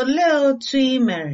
Olee otú i mere?